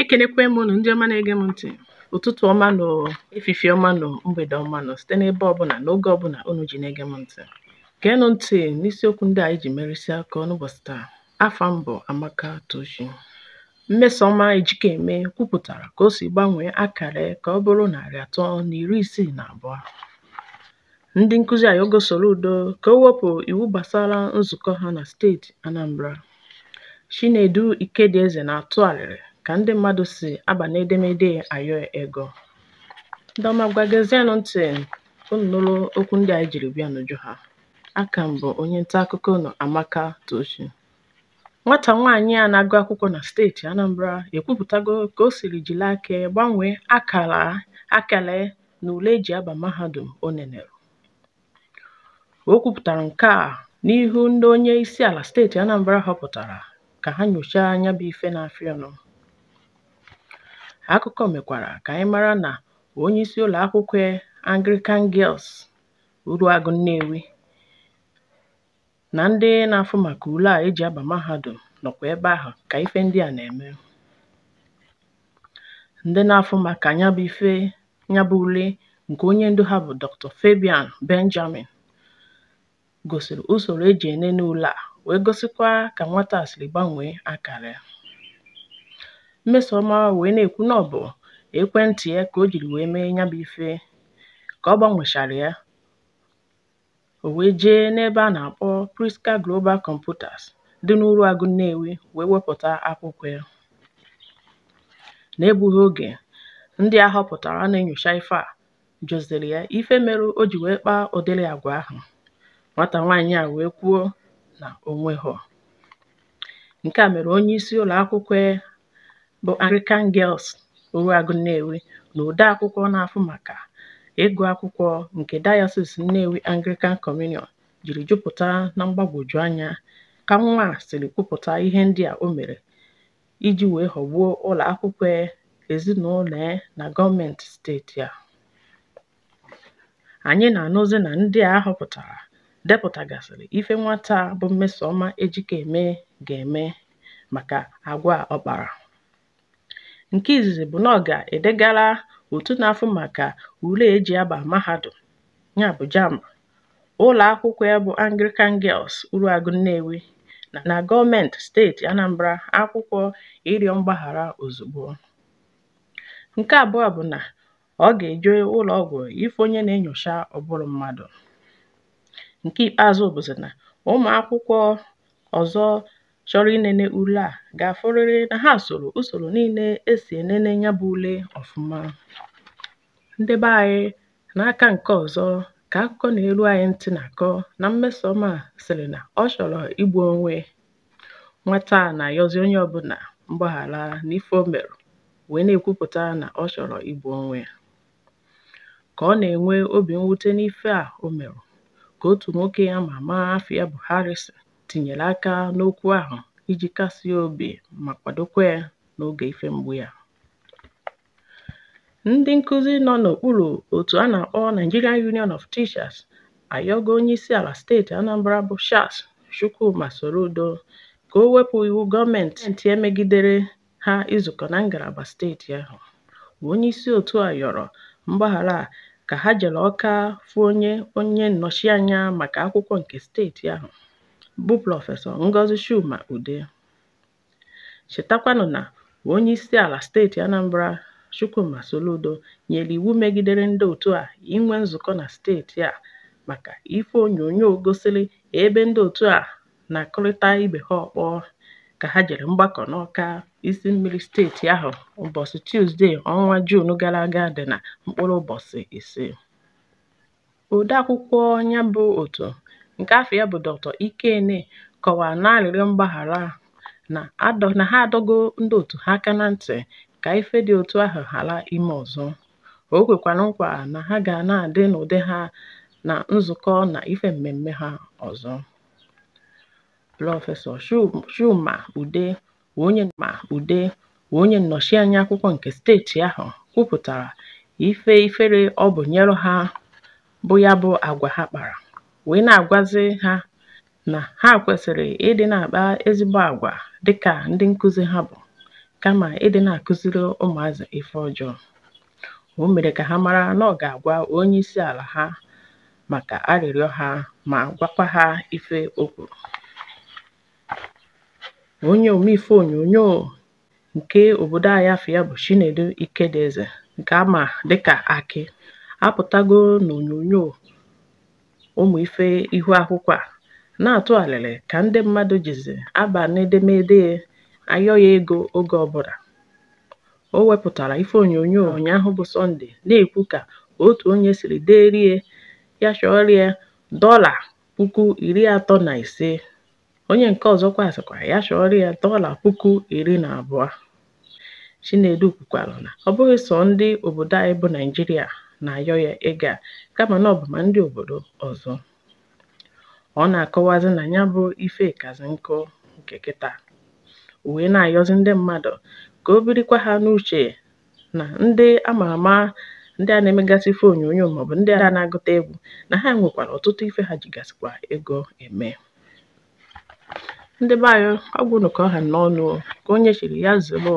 Ekelekwe m ụnụ ndị ọma na-ege m ntị. Ụtụtụ ọma nụ, efifie ọma nụ, mgbede ọma nụ site n'ebe ọbụla n'oge ọbụla ụnụ ji na-ege m ntị. Geenụ ntị n'isiokwu ndị a anyị ji merịsịa aka n'ụbọchị taa. Afa mbụ Amaka Tochi. Mmesoma Ejikeme kwupụtara ka o si gbanwee akara ka ọ bụrụ narị atọ na iri isii na abụọ. Ndị nkụzi gosoro udo ka o wepụ iwu gbasara nzukọ ha na steeti Anambra. Chinedu Ikedieze na-atụ arịrị ka ndị mmadụ si aba n'edemede ayọ ego. ndị ọma gbàgezienū ntị̀ okwu ndị anyị jiri bịa n'ùju ha. akà m̀ onye nta akụkọ unù Amaka Tochi nwata nwaanyị a na-agụ akwụkwọ na steeti Anambra ekwupụtago ka o siri jìli aka gbanwee akala akàlà na n'ùle eji aba mahadum o nènèrè o kwūpụ̀tàrà nke a n'ihu ndị onye isi ala steeti Anambra họpụtara ka ha nyochaa anya bụ ife na-afịa Akụkọ mekwara ka anyị mara na onyeisi akwụkwọ Anglican Girls Uruagụ Nnewi na ndị na afụ maka ule a eji aba mahadum nọkwa ebe ahụ ka ife ndị a na-eme. Ndị na afụ maka ya ife ule nke onye ndu ha bụ Dr Fabian Benjamin gosiri usoro eji enene ule a wee gosikwa ka nwata a siri gbanwee akara ya. Mmesoma wee na-ekwu na ọ bụ ekwentị ya ka o jiri wee mee ya bụ ife. Ka ọ gbanwechara ya, o wee jee n'ebe a na-akpọ Priska Global Computers dị n'Uruagụ Nnewi wee wepụta akwụkwọ ya. N'egbughị oge, ndị a họpụtara na-enyocha ife a jụziri ya ife mere o ji wee kpaa ụdịrị àgwà ahụ. Nwata nwaanyị a wee kwuo na onwe ha. Nke a mere onye onyeisi ụlọakwụkwọ bụ Anglican Girls Oruagu Nnewi na odeakwụkwọ na afụ maka ịgụ akwụkwọ nke Dayọsis Nnewi Anglican Communion jiri jupụta na mgbagwoju anya ka nwa a siri kwupụta ihe ndị a o mere iji wee ghọgbuo ụlọ akwụkwọ ezinụlọ ya na gọọmenti steeti a anyị na-anụzi na ndị a họpụtara depụtagasịrị ife nwata bụ Mmesoma e eme ga-eme maka agwa ọ kpara Nke izizi bụ na ọ ga-edegara otu na maka ule e ji aba mahadum ụlọ ụlọ ya bụ Anglican Girls Uruagụ Nnewi na gọọmenti steeti Anambra akwụkwọ ịrịọ mgbaghara ozugbo. Nke abụọ bụ na ọ ga-eje ụlọ ịfụ onye na-enyocha ọbụrụ mmadụ. Nke ikpeazụ bụzị na ụmụ akwụkwọ ọzọ chọrọ inene ule a ga-afụrịrị na ha soro usoro niile esi ènene ya bụ ule ọfụma ndị be anyị n'aka nke ọzọ ka akụkọ na elu anyị ntị na-akọ na mmesoma à sịrị na ọ chọrọ igbu onwe nwata à nà onye ọbụla mgbaghara n'ife o mèrù wee na-ekwupụta na ọ chọrọ igbu onwe ka ọ na-enwe obi mwute n'ife a o mèrù ka otu nwoke ama ama afọ ya bụ Harrison tinyere aka n'okwu ahụ iji kasie obi ma kwadokwa ya n'oge ife mgbu ya. Ndị nkuzi nọ n'okpuru otu a na-akpọ Nigerian Union of Teachers ayọgo Onyeisiala Steeti Anambra bụ Charles Chukwuma udo ka o wepụ iwu gọọmenti emegidere ha izukọ na ngalaba steeti ahụ. onye isi otu a yọrọ mgbaghara ka ha jere ọka fụ onye onye nnọchianya maka akwụkwọ nke steeti ahụ. bụ Prọfesọ Ngozi Chuma Ude chetakwanụ na onye isi ala steeti Anambra Chukwuma Soludo nyere iwu megidere ndị otu a inwe nzukọ na steeti a maka ife onyonyo gosiri ebe ndị otu a na-akụrịta ibe ha ọkpọ ka ha jere mgbakọ n'Ọka isi mmiri steeti ahụ ụbọchị Tuzdee ọnwa Juun gara aga dị na mkpụrụ ụbọchị ise odeakwụkwọ ya bụ otu. nke afọ ya bụ Dr. Ikene kọwara narịrị mgbaghara ahụ na ha adọgo ndị otu ha aka na ntị ka ife dị otu ahụ ghara ime ọzọ. O kwekwara nkwa na ha ga na-adị n'ụdị ha na nzukọ na ife mmemme ha ọzọ. Prọfesọ shuma Ude onye ma Ude onye nnọchianya akwụkwọ nke steeti ahụ kwupụtara ife ifere ọ bụ nyere ha bụ ya bụ agwa ha kpara. Wee na agwazi ha na ha kwesịrị ịdị na akpa ezigbo àgwà dịka ndị nkụzi ha bụ, kama ịdị na akụziri ụmụazụ ife ọjọọ, o mere ka ha mara na ọ ga-agwa onye isi ala ha maka arịrịọ ha ma gwakwa ha ife o kwùrù onye omeife onyonyo nke obodo anyị afọ ya bụ Chinedu nke ama amà dịkà aki, apụtago n'onyonyo. ụmụ ife ihu akwụkwọ a na-atụ alịlị ka ndị mmadụ jizi aba n'edemede ayọ ego oge ọbụla o wepụtara ife onyonyo ụnyaahụ bụ sọnde na-ekwu ka otu onye siri rie ya chọrịa dọla puku iri atọ na ise onye nke ọzọkwa sịkwa ya chọrịa dọla puku iri na abụọ chinedu kwukwara na ọ bụghị sọ ndị obodo anyị bụ naijiria na-ayọ ya ịga kama na ọ bụ ma ndị obodo ọzọ. Ọ na-akọwazị na ya bụ ife ịkazị nkụ nke kịta o wee na-ayọzị ndị mmadụ ka o birikwa ha n'uche na ndị ama ama ndị a na-emegasị ife onyonyo maọbụ ndị a na-agụta egwu na ha nwekwara ọtụtụ ife ha jigasịkwa ego eme ndị be anyị ọgwụ nụkọ ha n'ọnụ ka onye chiri ya zụrụ